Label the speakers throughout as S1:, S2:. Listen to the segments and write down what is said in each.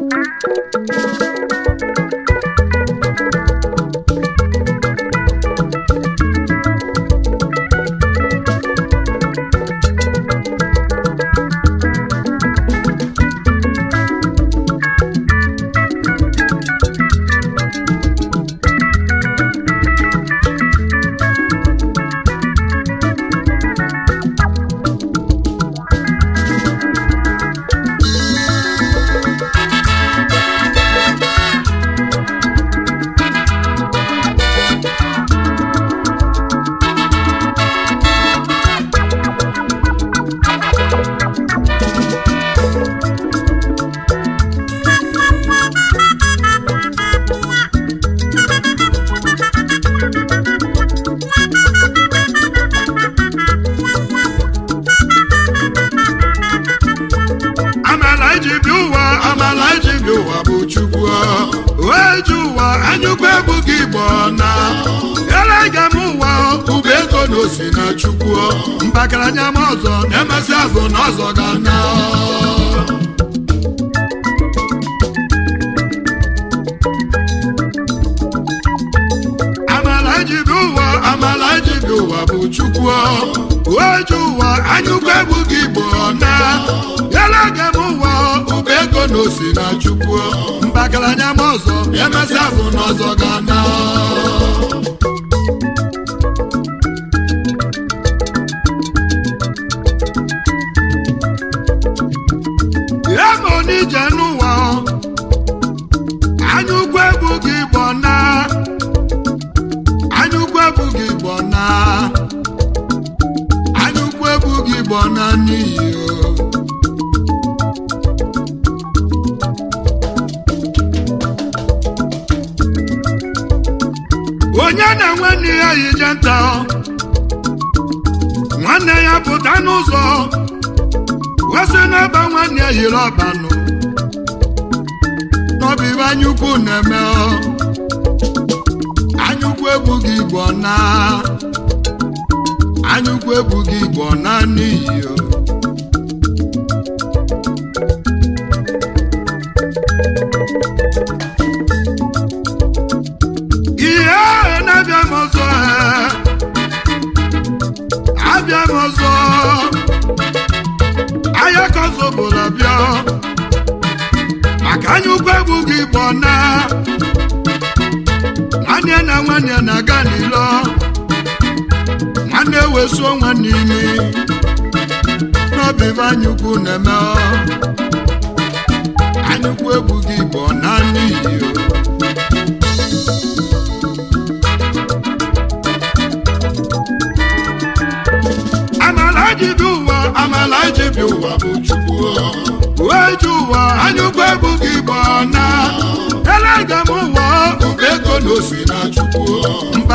S1: a ba ha a na osi na chukwu anya ma ọzọ na-emesị azụ na ọzọ ga na amala ijibi ụwa amala ijibi ụwa bụ chukwu oji ụwa anyụkwu egwu gị igbo na yalaga m ụwa ụgbọ ego na osi na chukwu anya ma ọzọ na-emesị azụ na ọzọ ga-ana onye na-enwe nne ya yi je nta nwanne ya pụta n'ụzọ wesị n'ebe nwanne ya yiri ọbanụ n'ọbụ anyaukwu na-eme anyaukwu ebughị igbo naa anyụkwu ebughị igbo naanị iyo ihe na-abịa m ọzọ abịa m ọzọ ahịa ka ọzọ bụla bịa maka anyụkwu ebughị igbo na nwanne na nwanne na-aga n'ụlọ. na-ewesuo nwanne imi n'obi ife anyukwu na-eme anyukwu egwu gị bụ naanị iyo amala jibi ụwa amala jibi ụwa bụ chukwu uweji ụwa anyukwu egwu gị bụ na ele ga m ụwa ube ego na osi na chukwu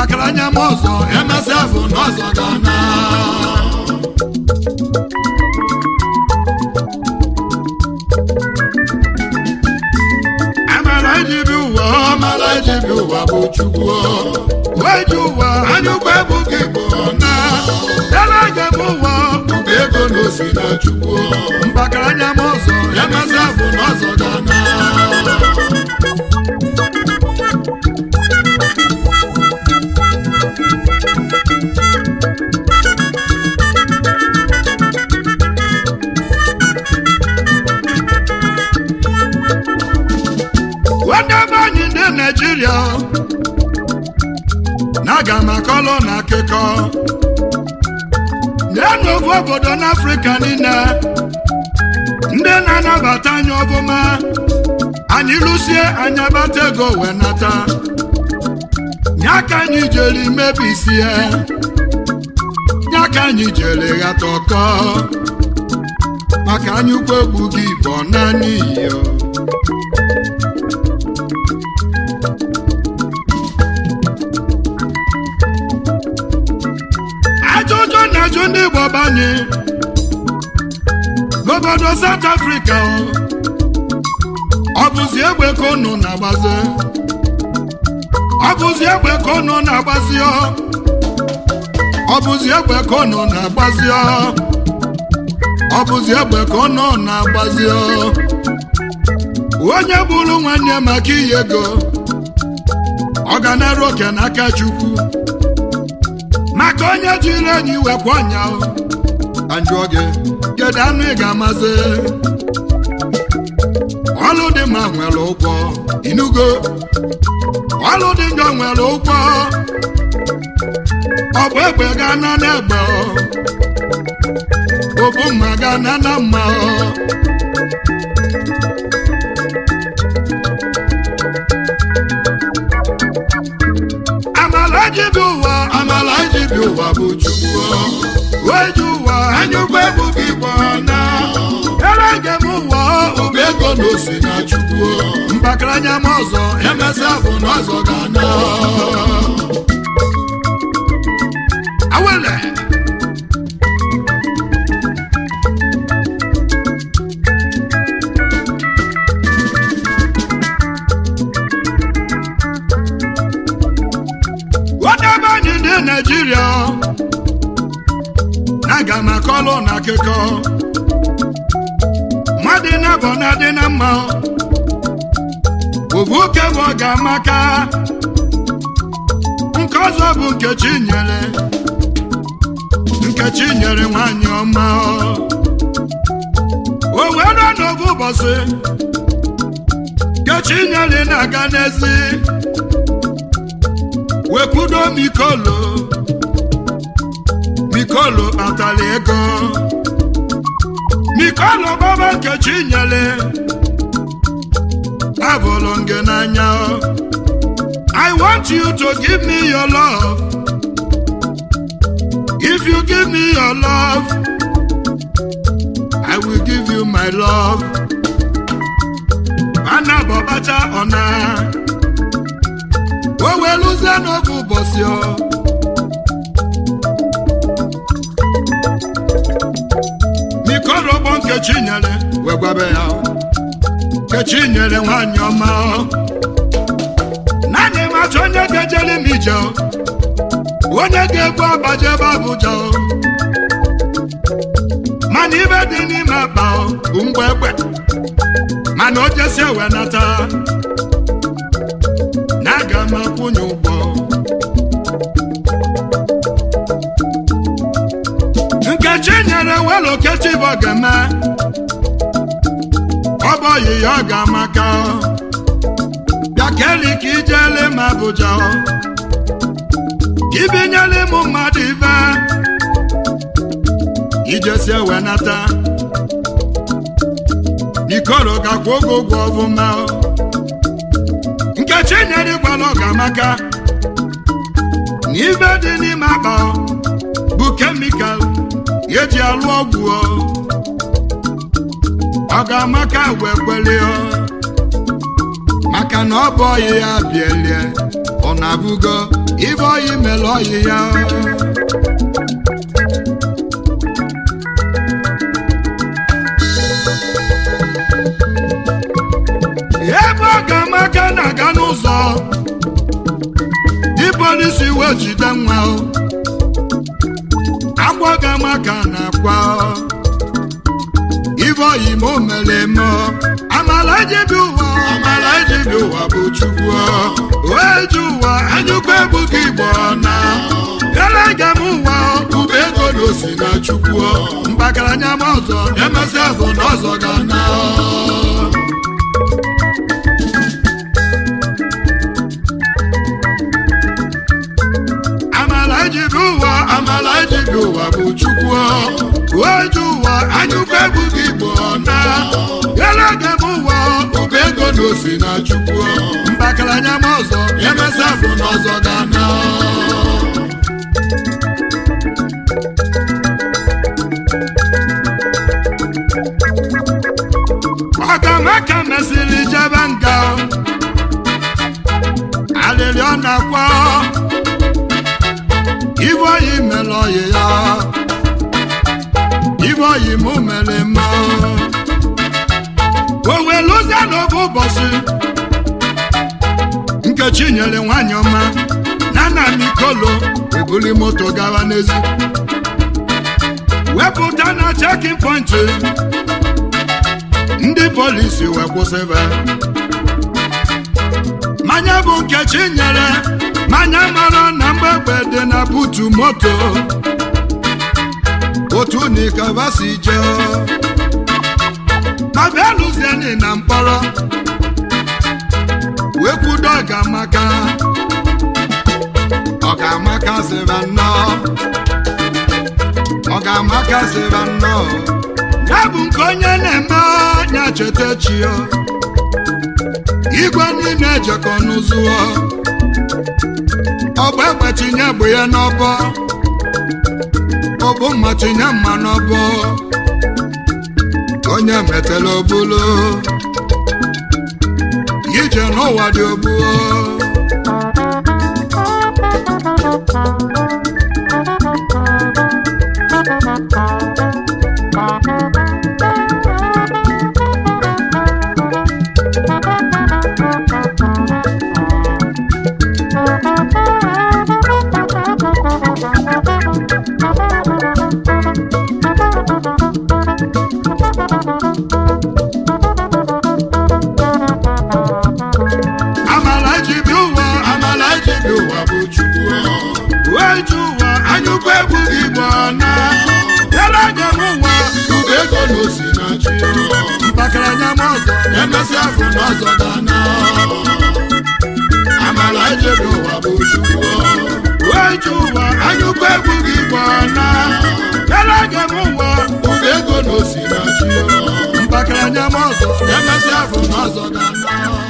S1: nwatakịrị anya m ụzọ emesịa bụ n'ọzọ gana emere ejibi ụwa ọmara ejibi ụwa bụ chukwu weji ụwa anyụkwa ebughị igbo na dara ga bụ ụwa bụ ego na osi na chukwu aga m akọlọ na akụkọ nyenụ n'ofu obodo n'afrịka niile ndị na-anabata anya ọbụma anyị lụsie anya bata ego wee nata nye aka anyị jere mebisie ya aka anyị jere ghata ọkọ maka anyị ukwu egwu gị bụ naanị iyo ndị Igbo banye n'obodo South afrịka ọ bụzi egbe ka unu na-agbazi ọ bụzi egbe ka unu na-agbazi ọ bụzi egbe ka unu na-agbazi ọ bụzi egbe ka unu na-agbazi onye bụrụ nwanne maka iyi ego ọ ga na-eru oke n'aka Chukwu onye jiri enyi wekwa ọnya ka njụọ gị kedu anụ ị ga-amazi ọlụ dị mma nwere ụgwọ inugo ọlụ dị njọ nwere ụgwọ ọ bụ egbe ga na n'egbe obu mma ga na na mma amara jibi ụwa ụwa bụ chukwu ji ụwa anya ụgbọ ebu gị gbana ere gị m ụwa bụ ego na na chukwu mbakara ọzọ emesịa bụ na ọzọ ga-ana Naịjirịa na-aga na kọlụ na akụkọ mmadụ na-abọ na adị na mma ovu oke bụ ọga amaka nke ọzọ bụ Nkechi nyere Nkechi nyere nwanyị ọma o wee ụbọchị Nkechi nyere na-aga n'ezi wekwudo mikolo mikolo atala ego mikolo baba nkechi nyele abụlụ nge n'anya I want you to give me your love if you give me your love I will give you my love ana bọbacha ọna o weluzie n'oge ụbọchị ọ kechinyere wee ya kechinyere nwanyị ọma naanị matụ onye ga-ejere m ije onye ga-egbu abaje ebe mana ibe dị n'ime akpa bụ mgbe egbe mana o jesi ewe nata ewelu okechi bụ ogene ọ bụ oyi ya keli ka ijele m Abuja ka ibinyela ịmụ mmadụ ibe ijesi ewe nata ikoro gakwa oge ụgwọ ọbụma nkechi nyere gwala ọgamaka na ibe dị n'ime akpa bụ kemikal eji alụ ọgwụ ọ ga amaka wee maka na ọ bụ ọyị ya bielie ọ na-abụgo ibe ọyị mere ọyị ya ebe ọ ga-ama na-aga n'ụzọ dịbọlisi wee jide nwa ọ ga amaka na akwa ibeoyima omere eme amala ejibi ụwa amala ejibi ụwa bụ chukwu oeji ụwa anyụkwa gị igbo na elega m ụwa ube ego na osi na chukwu mbakaranya m ọzọ emesịa bụ na ọzọ ga na amala jiri bụ chukwu uweju ụwa anyụkwa egwu gị igbo na galaga m ụwa ụba ego na osi na chukwu mbakaranya m ọzọ emesa afọ n'ọzọ dana ọkamaka mesịrị jebe nga alịrị ọ ibe oyi mere oyi ya ibe oyi mụ mere mma o wee lụzie n'oge ụbọchị nkechi nyere nwanyị ọma na nna m ebuli moto gawa n'ezi wepụta na e chekin pọnchị ndị polisi wee kwụsịba mmanya bụ nkechi nyere manya mara na mgbegbe dị na butu moto otu nikava si jee abịaluzieni na mkpọrọ wee kwudo ọgamaka ọgamaka sịra nnọọ ọgamaka sịra nnọọ ya bụ nke onye na-eme anya cheta chi igwe niile ejekọ n'ụzụ ọbụ egbe tinye bụ ya n'ọbọ ọbụ mma tinye mma n'ọbọ onye metela obulu ije n'ụwa dị obuo ama ọzọ emesịa afọ n'ọzọ dana amala ejebe ụwa bụ chukwu weje ụwa anyụkwa egwu gị gbana elege m ụwa ụga ego na osinachi mgbakara anya m ọzọ emesịa afọ n'ọzọ dana